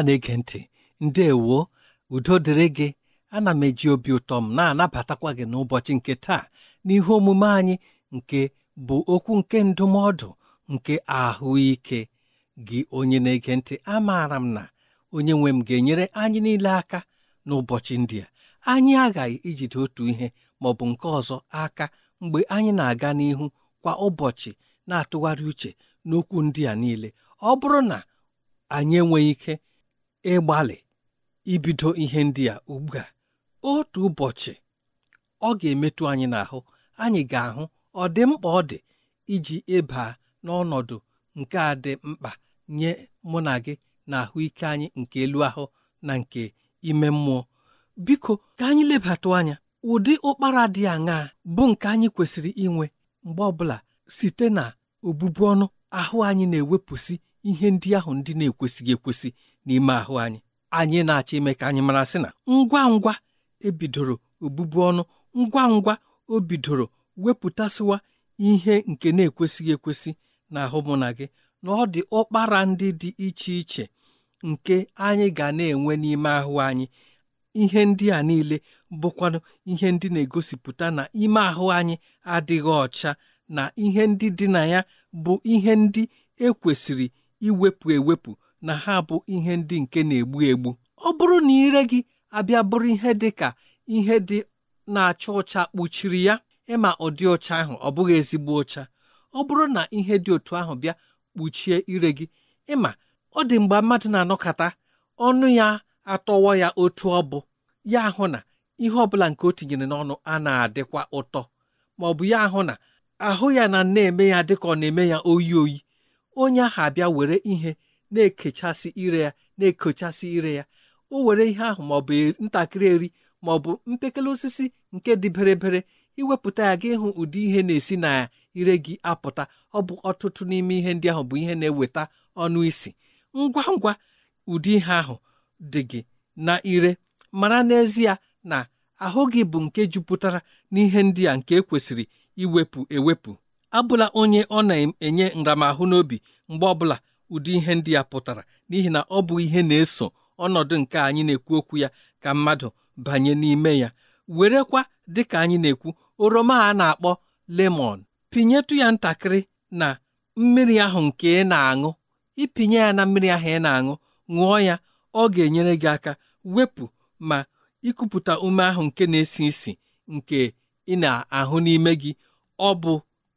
ọma na-ege ntị ndewo udo dịrị gị ana m eji obi ụtọ m na-anabatakwa gị n'ụbọchị nke taa n'ihe omume anyị nke bụ okwu nke ndụmọdụ nke ahụike gị onye na-ege ntị amaara m na onye nwe m ga-enyere anyị niile aka n'ụbọchị ndị a anyị aghaghị ijide otu ihe ma ọ bụ nke ọzọ aka mgbe anyị na-aga n'ihu kwa ụbọchị na-atụgharị uche n'okwu ndị a niile ọ bụrụ na anyị enweghị ike ịgbalị ibido ihe ndị a ugbu a otu ụbọchị ọ ga-emetụ anyị n'ahụ anyị ga-ahụ ọ dị mkpa ọ dị iji ịba n'ọnọdụ nke a dị mkpa nye mụ na gị na ahụike anyị nke elu ahụ na nke ime mmụọ biko ka anyị lebatụ anya ụdị ụkpara dị aṅaa bụ nke anyị kwesịrị inwe mgbe ọbụla site na obubu ọnụ ahụ anyị na-ewepụsị ihe ndị ahụ ndị na-ekwesịghị ekwesị n'ime ahụ anyị anyị na-achọ ime ka anyị mara sị na ngwa ngwa ebidoro obụbu ọnụ ngwa ngwa o bidoro wepụtasịwa ihe nke na-ekwesịghị ekwesị na mụ na gị na ọ dị ụkpara ndị dị iche iche nke anyị ga na-enwe n'ime ahụ anyị ihe ndị a niile bụkwanụ ihe ndị na-egosipụta na ime ahụ anyị adịghị ọcha na ihe ndị dị na ya bụ ihe ndị ekwesịrị iwepụ ewepụ na ha bụ ihe ndị nke na-egbu egbu ọ bụrụ na ire gị abịa bụrụ ihe dị ka ihe dị na-acha ụcha kpuchiri ya ịma ụdị ụcha ahụ ọ bụghị ezigbo ụcha. ọ bụrụ na ihe dị otu ahụ bịa kpuchie ire gị ịma ọ dị mgbe mmadụ na-anọkọta ọnụ ya atọwọ ya otu ọ bụ ya hụ na ihe ọbụla nke o tinyere n'ọnụ a na-adịkwa ụtọ ma ọ bụ ya ahụ na ahụ ya na na-eme ya dịka ọ na-eme ya oyi oyi onye ahụ abịa were ihe na-ekechasị ire ya na-ekochasị ire ya o were ihe ahụ ma ọ bụ ntakịrị eri ma ọ bụ mpekele osisi nke dị berebere iwepụta ya gị hụ ụdị ihe na-esi na ire gị apụta ọ bụ ọtụtụ n'ime ihe ndị ahụ bụ ihe na-eweta ọnụ isi ngwa ngwa ụdị ihe ahụ dị gị na ire mara n'ezie na ahụ gị bụ nke jupụtara n'ihe ndị a nke ekwesịrị iwepụ ewepụ abụla onye ọ na-enye nramahụ n'obi mgbe ọbụla ụdị ihe ndị a pụtara n'ihi na ọ bụ ihe na-eso ọnọdụ nke anyị na-ekwu okwu ya ka mmadụ banye n'ime ya werekwa dịka anyị na-ekwu oroma a na-akpọ lemon pinyetụ ya ntakịrị na mmiri ahụ nke ị na-aṅụ ịpinye ya na mmiri ahụ ị na-aṅụ ṅụọ ya ọ ga-enyere gị aka wepụ ma ikupụta ume ahụ nke na-esi isi nke ị na-ahụ n'ime gị ọ bụ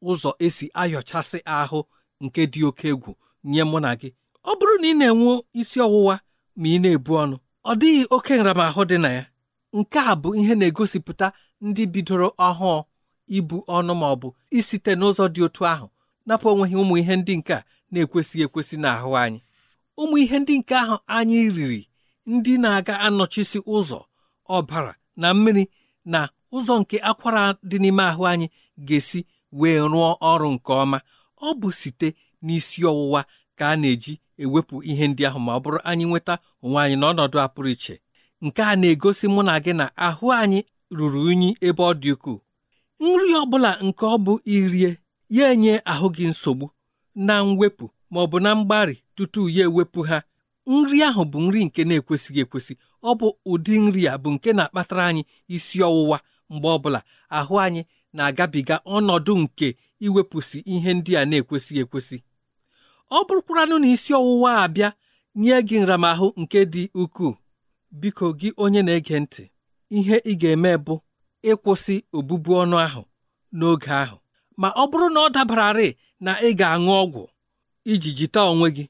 ụzọ esi ayọchasị ahụ nke dị oke egwu nye mụ na gị ọ bụrụ na ị na-enwe isi ọwụwa ma ị na-ebu ọnụ ọ dịghị oke nramahụ dị na ya nke a bụ ihe na-egosipụta ndị bidoro ọhụụ ibu ọnụ ma ọ bụ isite n'ụzọ dị otu ahụ napụ onweghị ụmụ ihe ndị nke a na-ekwesịghị ekwesị n'ahụ anyị ụmụ ihe ndị nke ahụ anyị riri ndị na-aga anọchisi ụzọ ọbara na mmiri na ụzọ nke akwara dị n'ime ahụ anyị ga-esi wee rụọ ọrụ nke ọma ọ bụ site n'isi ọwụwa ka a na-eji ewepụ ihe ndị ahụ ma ọ bụrụ anyị nweta onwe anyị n'ọnọdụ a pụrụ iche nke a na-egosi mụ na gị na ahụ anyị ruru unyi ebe ọ dị ukwuu nri ọ bụla nke ọ bụ irie ya enye ahụ gị nsogbu na mwepụ ma ọ bụ na mgbari tutu ya ewepụ ha nri ahụ bụ nri nke na-ekwesịghị ekwesị ọ bụ ụdị nri a bụ nke na-akpatara anyị isi ọwụwa mgbe ọ bụla ahụ anyị na-agabiga ọnọdụ nke iwepụsị ihe ndị a na-ekwesịghị ekwesị ọ bụrụkwaranụ na isi ọwụwa abịa nye gị nramahụ nke dị ukwuu biko gị onye na-ege ntị ihe ị ga-eme bụ ịkwụsị obụbu ọnụ ahụ n'oge ahụ ma ọ bụrụ na ọ dabararị na ị ga-aṅụ ọgwụ iji jite onwe gị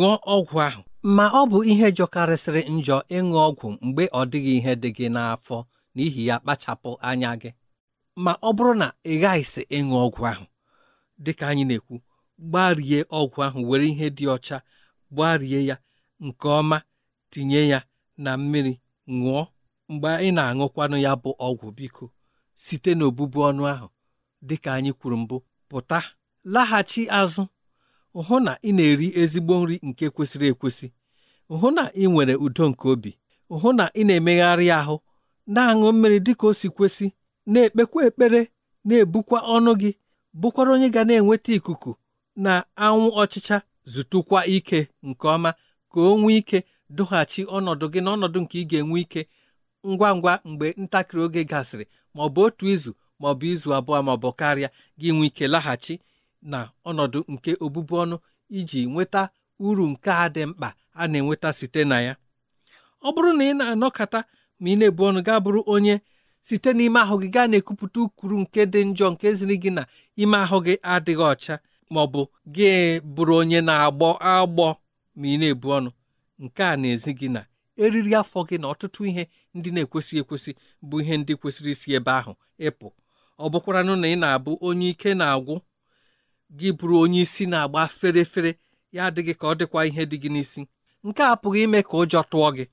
ṅụọ ọgwụ ahụ ma ọ bụ ihe jọkarịsịrị njọ ịṅụ ọgwụ mgbe ọ dịghị ihe dị gị n'afọ n'ihi ya kpachapụ anya gị ma ọ bụrụ na ị ghaghịsị ịṅụ ọgwụ ahụ dịka anyị na-ekwu gbarie ọgwụ ahụ were ihe dị ọcha gbarie ya nke ọma tinye ya na mmiri ṅụọ mgbe ị na-aṅụkwanụ ya bụ ọgwụ biko site n'obubu ọnụ ahụ dịka anyị kwuru mbụ pụta laghachi azụ hụ na ị na-eri ezigbo nri nke kwesịrị ekwesị hụ na ị nwere udo nke obi hụ na ị na-emegharị ahụ na-aṅụ mmiri dị ka o si kwesị na-ekpekwa ekpere na-ebukwa ọnụ gị bụkwara onye ga na-enweta ikuku na anwụ ọchịcha zụtụkwa ike nke ọma ka o nwee ike dụghachi ọnọdụ gị na ọnọdụ nke ị ga-enwe ike ngwa ngwa mgbe ntakịrị oge gasịrị ma ọ bụ otu izu ma ọ bụ izu abụọ ma ọ bụ karịa gị nwee ike laghachi na ọnọdụ nke obubu ọnụ iji nweta uru nke a dị mkpa a na-enweta site na ya ọ bụrụ na ị na-anọkata ma ị na-ebu ọnụ gaa bụrụ onye site n'ime ahụ gị gaa na-ekupụta ukwuru nke dị njọ nke ziri gị na ime ahụ gị adịghị ọcha ma ọ bụ gị bụrụ onye na-agbọ agbọ ma ị na-ebu ọnụ nke a na-ezi gị na eriri afọ gị na ọtụtụ ihe ndị na-ekwesị ekwesị bụ ihe ndị kwesịrị isi ebe ahụ ịpụ ọ bụkwaranụ na ị na-abụ onye ike na-agwụ gị bụrụ onye isi na-agba fere fere ya adịghị ka ọ dịkwa ihe dị gị n'isi nke a apụghị ime ka ụjọ tụọ gị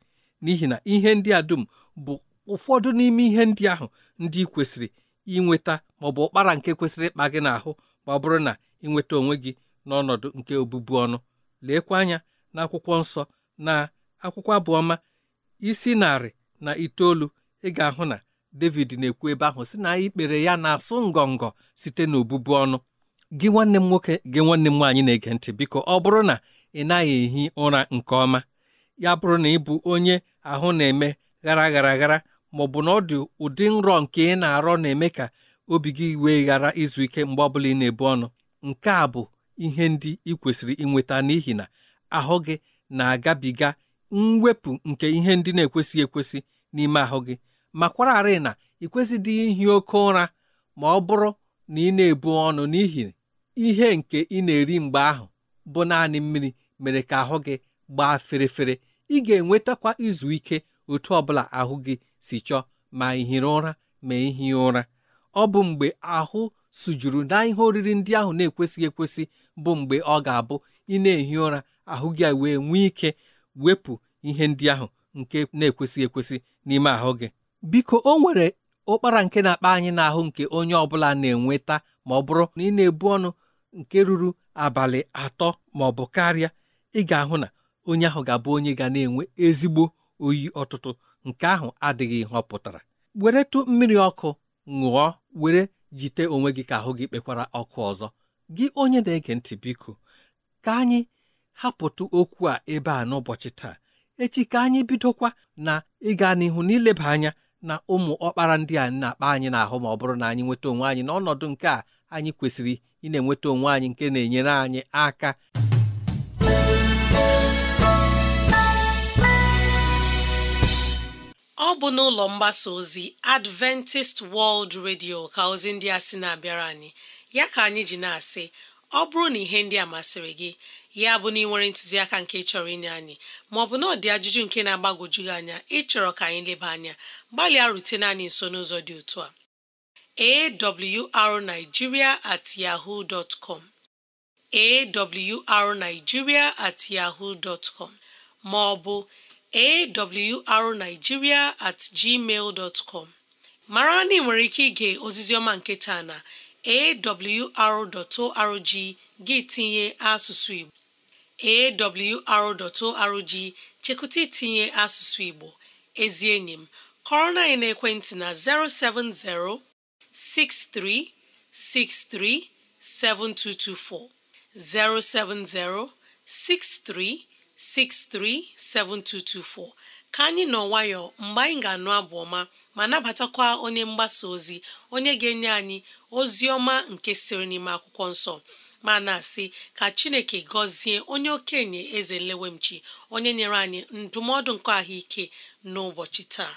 n'ihi na ihe ndị a dum bụ ụfọdụ n'ime ihe ndị ahụ ndị kwesịrị inweta ma ọ bụ ụkpara nke kwesịrị ịkpa gị n'ahụ ma ọ bụrụ na ị nweta onwe gị n'ọnọdụ nke obụbu ọnụ leekwa anya na akwụkwọ nsọ na akwụkwọ abụọma isi narị na itoolu ị ga-ahụ na David na-ekwu ebe ahụ si na ikpere ya na-asụ ngọngọ site n'obụbu ọnụ gị nwanne m nwoke gị nwanne m nwaanyị na-ege ntị biko ọ bụrụ na ị naghị ehi ụra nke ọma ya bụrụ na ị bụ onye ahụ na-eme ghara ghara aghara ma ọ bụ na ọ dị ụdị nrọ nke ị na-arọ na-eme ka obi gị wee ghara izu ike mgbe ọbụla ị na-ebu ọnụ nke a bụ ihe ndị ị kwesịrị inweta n'ihi na ahụ gị na-agabiga mwepụ nke ihe ndị na-ekwesịghị ekwesị n'ime ahụ gị ma kwararị na ị kwesịdị ihi oke ụra ma ọ bụrụ na ị na-ebu ọnụ n'ihi ihe nke ị na-eri mgbe ahụ bụ naanị mmiri mere ka ahụ gị gbaa ferefere ị ga-enwetakwa izu ike otu ọbụla ahụ gị si chọọ ma ihiri ụra ma ihi ụra ọ bụ mgbe ahụ sujuru na ihe oriri ndị ahụ na-ekwesịghị ekwesị bụ mgbe ọ ga-abụ ị na-ehi ụra ahụ gị wee nwee ike wepụ ihe ndị ahụ nke na-ekwesịghị ekwesị n'ime ahụ gị biko o nwere ụkpara nke na-akpa anyị n'ahụ nke onye ọbụla na-enweta ma ọ bụrụ na ị na-ebu ọnụ nke ruru abalị atọ ma ọ bụ karịa ị ga-ahụ na onye ahụ ga-abụ onye ga na-enwe ezigbo oyi ọtụtụ nke ahụ adịghị họpụtara were pụtara weretụ mmiri ọkụ ṅụọ were jite onwe gị ka ahụ gị kpekwara ọkụ ọzọ gị onye na-ege ntị biko ka anyị hapụtụ okwu a ebe a n'ụbọchị taa echi ka anyị bidokwa na ịga n'ihu n'ileba anya na ụmụ ọkpara ndị a na-akpa anyị n'ahụ ma ọ bụrụ na anyị nweta onwe anyị n'ọnọdụ nke a anyị kwesịrị ị enweta onwe anyị nke na-enyere anyị aka ọ bụ n'ụlọ mgbasa ozi Adventist World Radio ka ozi ndị a sị na-abịara anyị ya ka anyị ji na-asị ọ bụrụ na ihe ndị a masịrị gị ya bụ na ị nwere ntụziaka nke chọrọ inye anyị maọbụ na ọ dị ajụjụ nke na-agbagwoju gị anya ịchọrọ ka anyị leba anya gbalịa rutene anyị nso n'ụzọ dị otu a awrnigeria at yahoo dot com awrnigeria at yahoo dot com maọbụ awrnigeria at gmail com mara na ị nwere ike ige ọma nke taa na awr.org gị tinye asụsụ Igbo awr.org chekụta itinye asụsụ Igbo ezi enyi m kọrọ na na-ekwentị na 070 6363 7224 070 7224 637224 ka anyị nọ nwayọọ mgbe anyị ga-anụ abụ ọma ma nabatakwa onye mgbasa ozi onye ga-enye anyị ozi ọma nke siri n'ime akwụkwọ nsọ ma na-asị ka chineke gọzie onye okenye eze nlewemchi onye nyere anyị ndụmọdụ nke ahụike n'ụbọchị taa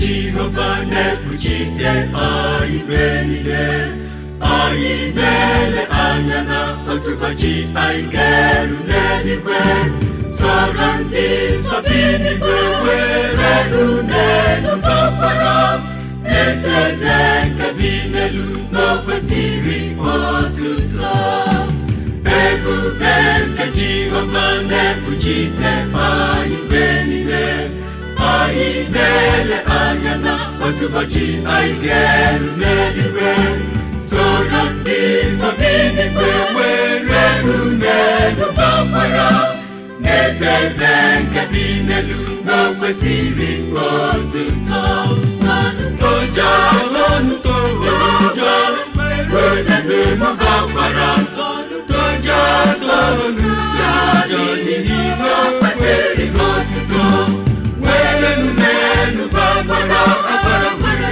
Jehova na-ekpuchite anyị mgbe niile anyị na-ele anya na otu ụbọchị anyị ga-eru n'eluigwe sọrọ ndị nsọ bi n'igwe were ru n'elu kpakpara eze nke bi n'elu n'okwesịrị otuto ebube nke Jehova na Mchungaji na-enyere iwe soro ndị nsọ n'igwe nwere n'elu gbakwara na-eto eze nke dị n'elu n'okwe toja tonto ojo were n'elu gbakwara toja tonu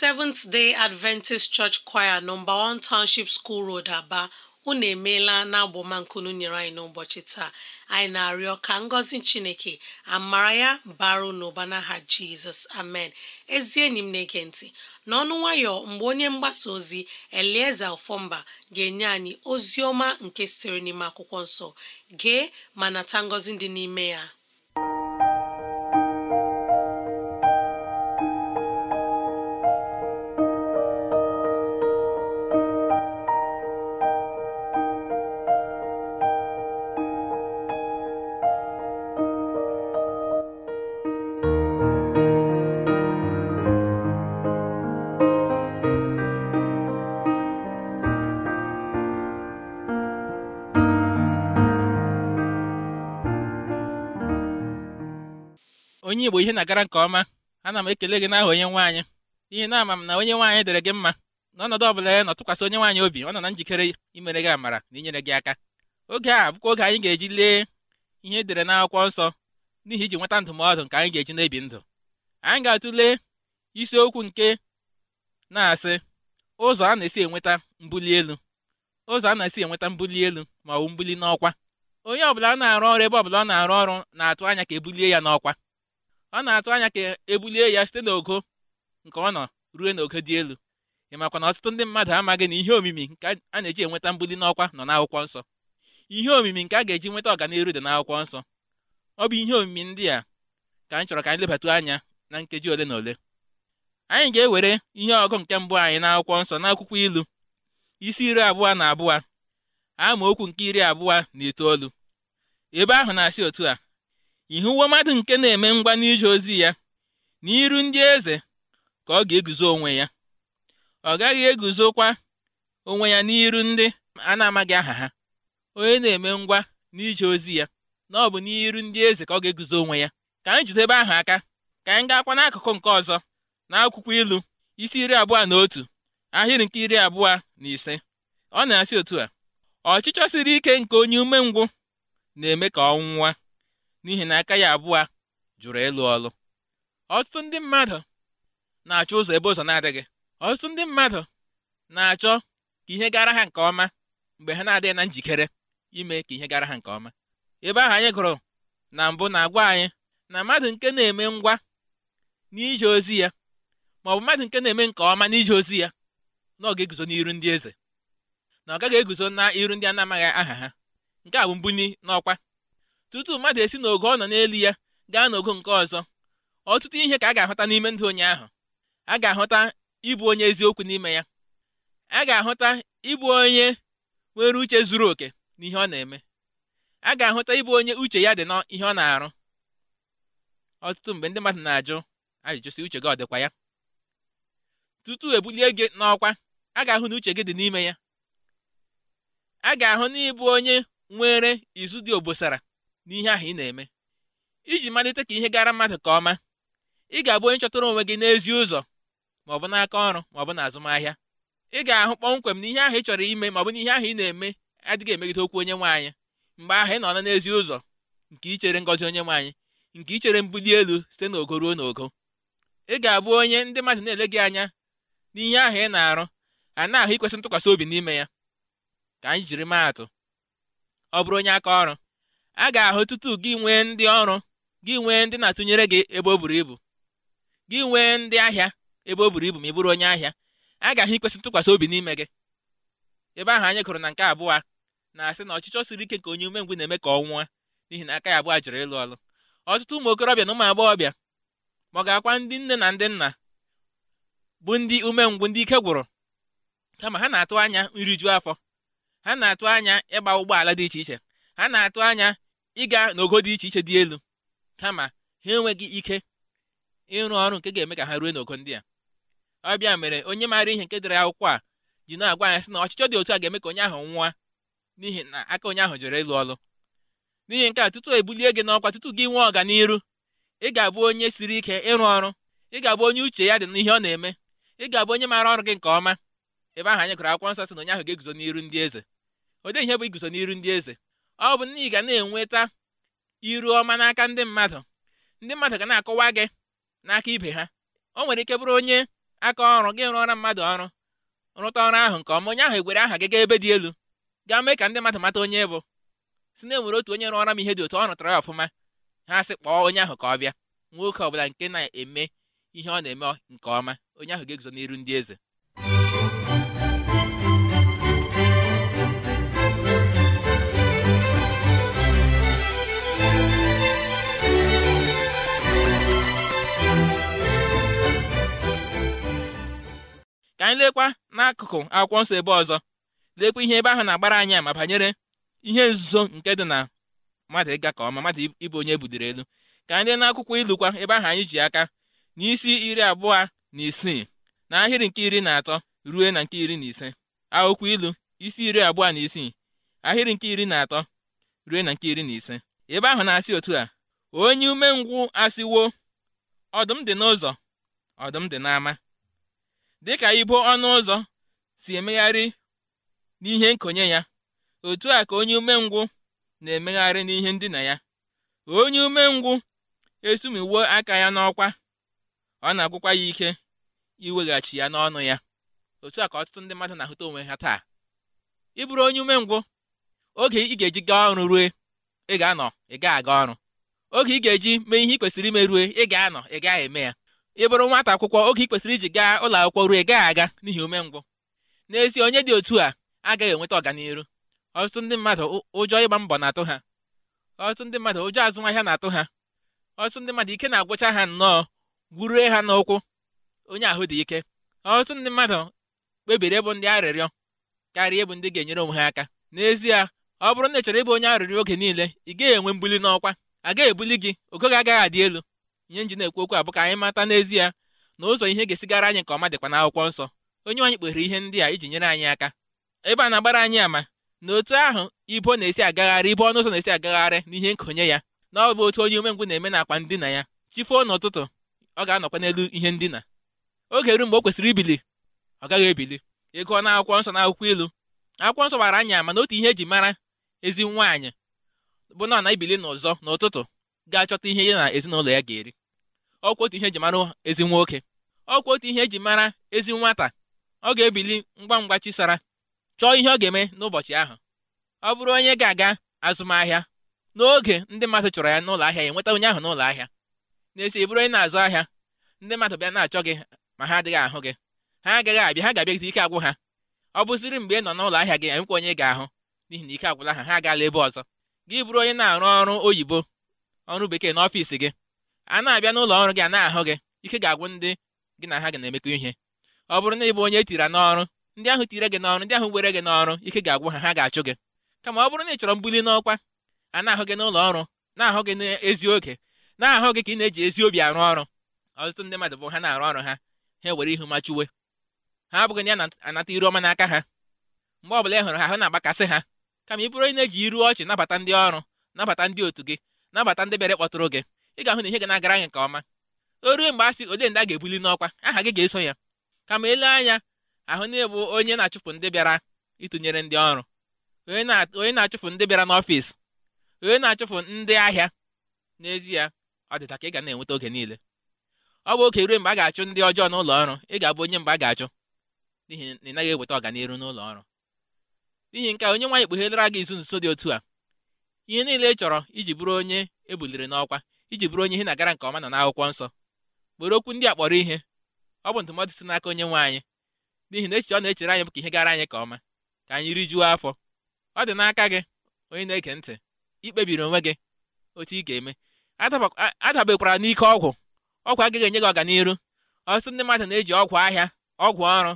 Seventh Day Adventist Church Choir nọmba 1 Township School Road Aba unu emeela na agbomankunu nyere anyị n'ụbọchị taa anyị na-arịọ ka ngọzi Chineke amara ya baru n'ụba n'aha Jizọs amen ezi enyi m na-ege ntị n'ọnụ nwayọ mgbe onye mgbasa ozi Elieza Ọfọmba ga-enye anyị ozi ọma nke sitere n'ime akwụkwọ nsọ gee ma nata ngọzi dị n'ime ya onye Igbo ihe na-agara nke ọma ana m ekele gị n'aha onye nwaanyị ihe na-ama m na onye nwe anyị dere gị mma na ọnọdụ ọ bụla ya nọ tụkwasị onye nwaanyị obi ọ nọ na njikere imere gị amara na inyere gị aka oge a bụkwa oge anyị ga-eji lee ihe edere n'akwụkwọ nsọ n'ihi iji nweta ndụmọdụ nke anyị ga-eji na-ebi ndụ anyị ga-atụle isiokwu nke na-asị ụzọ a na-esi enweta mbuli elu ụzọ a na-esi enweta mbuli elu ma ọ bụ mbuli n'ọkwa onye ọbụla na-arụ ọrụ ebe ọbụla ọ na-arụ ọrụ na-atụ anya ka ebulie ya n'ọkwa ọ na-atụ anya ka ebulie ya site n'ogo nke ọ nọ ruo n'ogo dị elu ị makwa na ọtụtụ ndị mmadụ amaghị na ihe omimi nke a na-eji enweta mbuli n'ọkwa nọ n'akwụkwọ nsọ ihe omimi nke a ga-eji nweta ọganiru dị n'akwụkwọ nsọ ọ bụ ihe omimi ndị a ka anyị chọrọ ka anyị lebatu anya na nkeji ole na ole anyị ga-ewere ihe ọgụ nke mbụ anyị n'akwụkwọ nsọ n'akwụkwọ ilu isi iri abụọ na abụọ okwu nke iri abụọ na itoolu ebe ahụ na-asị otu a uwe mmadụ nke na-eme ngwa n'ije ozi ya n'iru ndị eze ka ọ ga-eguzo onwe ya ọ gaghị eguzokwa onwe ya n'iru ndị a na-amaghị aha ha onye na-eme ngwa n'ije ozi ya na ọ bụ n'iru ndị eze ka ọ ga-eguzo onwe ya ka anyị jidebe ahụ aka ka anyị gaakwa n'akụkụ nke ọzọ na akwụkwọ ilu isi iri abụọ na otu ahịrị nke iri abụọ na ise ọ na-asị otu a ọchịchọ siri ike nke onye umengwụ na-eme ka ọ nwụwa n'ihi na aka ya abụọ jụrụ ịlụ ọlụ ọtụtụ ndị mmadụ na-achọ ụzọ ebe ụzọ na-adịghị ọtụtụ ndị mmadụ na-achọ ka ihe gara ha nke ọma mgbe ha na-adịghị na njikere ime ka ihe gara ha nke ọma ebe ahụ anyị gụrụ na mbụ na-agwa anyị na mmadụ nke na-eme ngwa n'ije ozi ya ma ọ bụ mmadụ nke na-eme nke ọma n'ije ozi ya na ọ ga-eguzo n'iru ndị eze na ọ gaghị eguzo na iru ndị a na-amaghị aha ha nke a bụ mbunyi n'ọkwa tutu mmadụ esi n'ogo ọ nọ n'elu ya gaa n'ogo nke ọzọ ọtụtụ ihe ka a ga-ahụta n'ime ndụ onye ahụ a ga-ahụta ịbụ onye eziokwu n'ime ya a ga-ahụta ịbụ onye nwere uche zuru oke n'ihe ọ na-eme a ga-ahụta ịbụ onye uche ya dị n'ihe ọ na-arụ ọtụtụ mgbe ndị mmadụ na-ajụ ajụjụ si uche gị ọ dịkwa ya tutu ebulie gị n'ọkwa a ga-ahụ na uche gị dị n'ime ya a ga-ahụ na ịbụ onye nwere izu dị obosara n'ihe ahụ ị na-eme iji malite ka ihe gara mmadụ ka ọma ị ga-abụ onye chọtara onwe gị n'ezi ụzọ ma ọ bụ n'aka ọrụ ma ọ bụ n'azụmahịa ị ga-ahụ kpọmkwem na ihe ahụ ị chọrọ ime ma ọ bụ ihe ahụ ị na-eme adịghị emegide okwu onye nwe anyị mgbe ahụ ị nọ na n'ezi ụzọ nke ichere ngọzi onye nwe anyị nke ichere mbuli elu site n'ogo ruo n'ogo ị ga-abụ onye ndị mmadụ na-ele gị anya n'ihe ahụ ị na-arụ a na-ahụ ikwesị ntụkwasị obi n'ime ya ka anyị jiri maa atụ ọ bụrụ onye aka ọrụ a ga-ahụ tutu gị nwee ndị ọrụ gị nwee ndị na-atụnyere gị ebe o buru ibu gị nwee ndị ahịa ebe o buru ibu ma ị bụrụ onye ahịa a ga-ahụ ikwesị ntụkwasị obi n'ime gị ebe ahụ anyị gụrụ na nke abụọ na-asị na ọchịchọ siri ike ka onye umengwu na-eme ka ọ nwụọ n'ihi na aka ya abụọ jụrụ ịlụ ọlụ ọtụtụ ụmụ okorobịa na ụmụ agbọghọbịa ma ọ ga-akwa ndị nne na ndị nna bụ ndị umengwu ndị ike gwụrụ kama ha na-atụ anya nriju afọ ha na-atụ anya ịgba ụgbọala dị iche iche ha na-atụ anya ịga n'ogo dị iche iche dị elu kama ha enweghị ike ịrụ ọrụ nke ga-eme ka ha ruo n'ogo ndị a ọbịa mere onye maara ihe nke dịrị akwụkwọ a ji na-agwa anyị sị na ọchịchọ dị otu a ga-eme ka onye ahụ nwụọ n'ihi na aka onye ahụ jere ịlụ ọlụ n'ihi nke a tutu ebulie gị n'ọkwa tutu gị nwee ọganiru ị ga-abụ onye siri ike ịrụ ọrụ ị ga-abụ onye uche ya dị n'ihe ọ na-eme ị ga-abụ onye maara ọrụ gị nke ọma ebe ahụ anyị gụrụ akwụkwọ nsọ sị na onye ahụ ga-eguzo n'iru ndị eze odee ihe bụ iguzo n'iru ndị eze ọ bụ na ị ga na-enweta iru ọma n'aka ndị mmadụ ndị mmadụ ga na-akọwa gị n'aka ibe ha o nwere ike bụrụ onye aka ọrụ gị rụọra mmadụ ọrụ rụta ọrụ ahụ nke ọma onye ahụ egwere aha gị gaa ebe dị elu ga mee ka ndị mmadụ mata onye bụ si na enwere otu onye rụọra m ihe dị otu ọ rụtara ya ọfụma ha sị kpọọ onye ahụ ka ọ bịa nwoke ọbụla nke na-eme ihe ọ na-eme nke ọma onye ahụ ga-eguzo n'iru ndị eze ka anyị lekwa n'akụkụ akwụkwọ nsọ ebe ọzọ lekwa ihe ebe ahụ na-agbara anyị ma banyere ihe nzuzo nke dị na mmadụ ịga ka ọma mmadụ ịbụ onye ebudere elu ka anyị lee n'akwụkwọ ilukwa ebe ahụ anyị ji aka n'isi iri abụọ na isii na ahịrị nke iri na atọ ruo na nke iri na ise akwụkwọ ilu isi iri abụọ na isii ahịrị nke iri na atọ ruo na nke iri na ise ebe ahụ na-asị otu a onye umengwụ asịwo ọdụm dị n'ụzọ ọdụm dị n'ama dịka ibo ọnụ ụzọ si emegharị n'ihe nkonye ya otu a ka onye umengwụ na-emegharị n'ihe ndina ya onye umengwụ esumiwo aka ya n'ọkwa ọ na-agwụkwa ya ike iweghachi ya n'ọnụ ya otu a ka ọtụtụ ndị mmadụ na-ahụta onwe ha taa ịbụrụ onye umengwụ oge ị ga-eji gaa ọrụ rue ị ga-anọ ị ga-aga ọrụ oge ị ga-eji mee ihe ị kwesịrị ime rue ị ga-anọ ị gaghị eme ya ị bụrụ nwata akwụkwọ oge ị kwesịrị iji gaa ụlọ akwụkwọ ruo gaa aga n'ihi umengwụ n'ezie onye dị otu a agaghị enweta ọganihu ọtụtụ ndị mmadụ ụjọ ịgba mbọ na-atụ ha ọtụtụ ndị mmadụ ụjọ azụmahịa na-atụ ha ọtụtụ ndị mmadụ ike na-agwụcha ha nnọọ gwurue ha n'ụkwụ onye ahụ dị ike ọtụtụ ndị mmadụ kpebiri ịbụ ndị arịrịọ karịa ịbụ ndị ga-enyere onwe ha aka n'ezie ọ bụrụ na ị chọrọ ịbụ onye arịrịọ oge niile ị gaghị enwe mbuli n'ọkwa agaghị ebuli gị ogo agaghị adị elu ihe nji na-ekwu okwu a ka anyị mata n'ezie na ụzọ ihe ga-esigara anyị nke ọma dịkwa n'akwụkwọ nsọ onye anyị kpere ihe ndị a iji nyere anyị aka ebe a na-agbara anyị ama na otu ahụ ibo na-esi agagharị ibo ọnụ ụzọ na-esi agagharị na ihe nkonye ya na ọbụ otu onye umengwụ na-eme na akpa ndina ya chifuo n'ụtụtụ ọ ga-anọkwa n'elu ihe ndina oge ru mgbe o kwesịrị ibili ọ gaghị ebili ịgụọ na akwụkwọ nsọ na akwụkwọ ilu akwụkwọ nsọ gbara anyị ama na otu ihe eji mara ezi nwaanyị bụ na ọ na-ebili n'ụzọ n'ụtụtụ ga-achọta ihe ya na ezinụlọ ya ga-eri ọkwa otu ihe eji mara ezi nwoke ọkwa otu ihe eji mara ezi nwata ọ ga-ebili ngwa ngwa chisara chọọ ihe ọ ga-eme n'ụbọchị ahụ ọ bụrụ onye ga-aga azụmahịa n'oge ndị mmadụ chọrọ ya n'ụlọ ahịa ya nweta onye ahụ n'ụlọ ahịa na-esi bụrụ onye na-azụ ahịa ndị mmadụ bịa na-achọ gị ma ha adịghị ahụ gị ha agaghị abịa ha ga-abịagide ike agwụ ha ọ bụziri mgbe ị nọ n'ụlọ ahịa gị enwekwa onye ga-ahụ n'ihi na ike agwụla ha ha agaala ebe ọzọ gị bụrụ onye na-arụ ọrụ oyibo ọrụ bekee n'ọfịs gị a na-abịa n'ụlọ ọrụ gị a na-ahụ gị ike ga-agwụ ndị gị na ha gị na-emekọ ihe ọ bụrụ na ị bụ onye etiri n'ọrụ ndị ahụ tire gị n'ọrụ ndị ahụ were gị n'ọrụ ike ga-agwụ ha ha ga-achụ gị kama ọ bụrụ na ị chọrọ mbuli n'ọkwa a na-ahụ gị n'ụlọ ọrụ na-ahụ gị n'ezi oge na-ahụ gị ka ị na-eji ezi obi arụ ọrụ ọtụtụ ndị mmadụ bụ ha na-arụ ọrụ ha ha ewere ihu machuwe ha abụghị na anata iru ọma n'aka ha mgbe ọbụla ị hụrụ ha ahụ na-agbakasị ha kama ị bụrụ onye na-eji iru ọchị nabata ndị ọrụ nabata ndị otu gị nabata ndị bịara kpọtụrụ gị ị ga-ahụ na ihe ga na-agara anyị nke ọma o mgbe a sị ndị ga-ebuli n'ọkwa aha gị ga-eso ya kama elu anya ahụ na-ebu onye na-achụpụ ndị bịara ịtụnyere ndị ọrụ onye na-achụpụ ndị bịara n'ọfịs onye na-achụpụ ndị ahịa n'ezie ọ dịta ka ị ga na-enweta oge niile ọ bụ oge ruo mgbe a ga-achụ ndị ọjọọ n'ụlọ ọrụ ị ga-abụ onye mgbe a ga-achụ n'ihi na ị naghị eweta ọganihu n'ụlọ ọrụ n'ihi nke onye nwaanyị kpughelera gị izu nso dị otu a ihe niile ị chọrọ iji bụrụ onye ebuliri n'ọkwa iji bụrụ onye ihe na-agara nke ọma nọ n'akwụkwọ nsọ were okwu ndị a kpọrọ ihe ọ bụ ndụmọdụ si n'aka onye nwe anyị n'ihi na echiche ọ na-echere anyị bụ ka ihe gara anyị ka ọma ka anyị rijuo afọ ọ dị n'aka gị onye na-ege ntị ikpebiri onwe gị otu ị ga-eme adabekwara n'ike ọgwụ ọgwụ agaghị enye gị ọganiru ọtụtụ ndị mmadụ na-eji ọgwụ ahịa ọgwụ ọrụ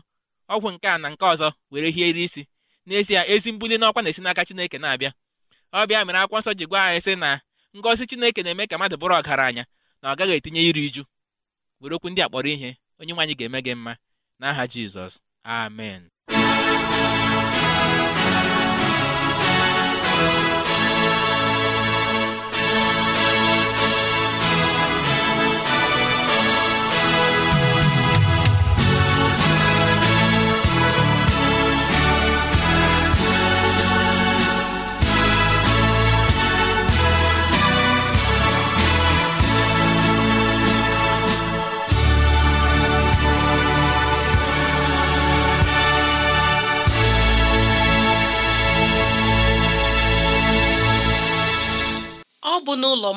ọgwụ nke na nke ọzọ were hiere isi n'ezie ezi mbuli n'ọkwa na-esi n'aka Chineke na-abịa ọ bịa mere akwụkwọ nsọ ji gwa anyị sị na ngọzi chineke na-eme ka mmadụ bụrụ ọgaranya na ọ gaghị etinye iri uju were okwu ndị a kpọrọ ihe onye nwaanyị ga-eme gị mma n'aha jizọs amen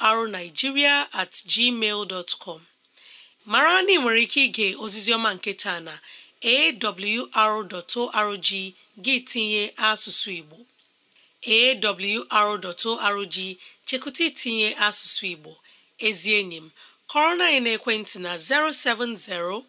arnigiria at gmail com mara na ị nwere ike ige ozizioma nke taa na arrg gị tinye asụsụ Igbo awr.org chekụta itinye asụsụ Igbo ezi enyi m kọrọ na anyị na-ekwentị na 070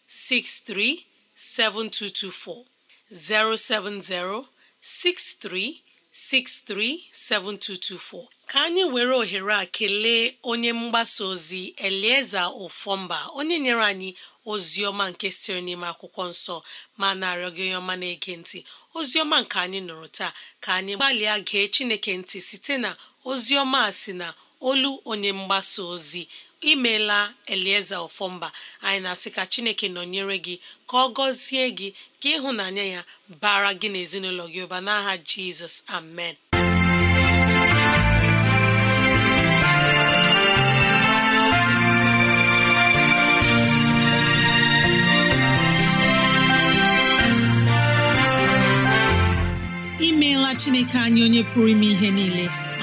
6363 7224 070 63 637224 ka anyị were ohere a kelee onye mgbasa ozi Elieza Ofọmba onye nyere anyị ozi ọma nke siri n'ime akwụkwọ nsọ ma na-arịọ gị onye ọma na-ege ntị ozi ọma nke anyị nụrụ taa ka anyị gbalịa gee Chineke ntị site na ozi ọma a si na olu onye mgbasa ozi imela elieze ofọmba anyị na-asị ka chineke nọnyere gị ka ọ gọzie gị ka ịhụnanya ya bara gị n'ezinụlọ gị ụba n'aha jizọs amen imeela chineke anyị onye pụrụ ime ihe niile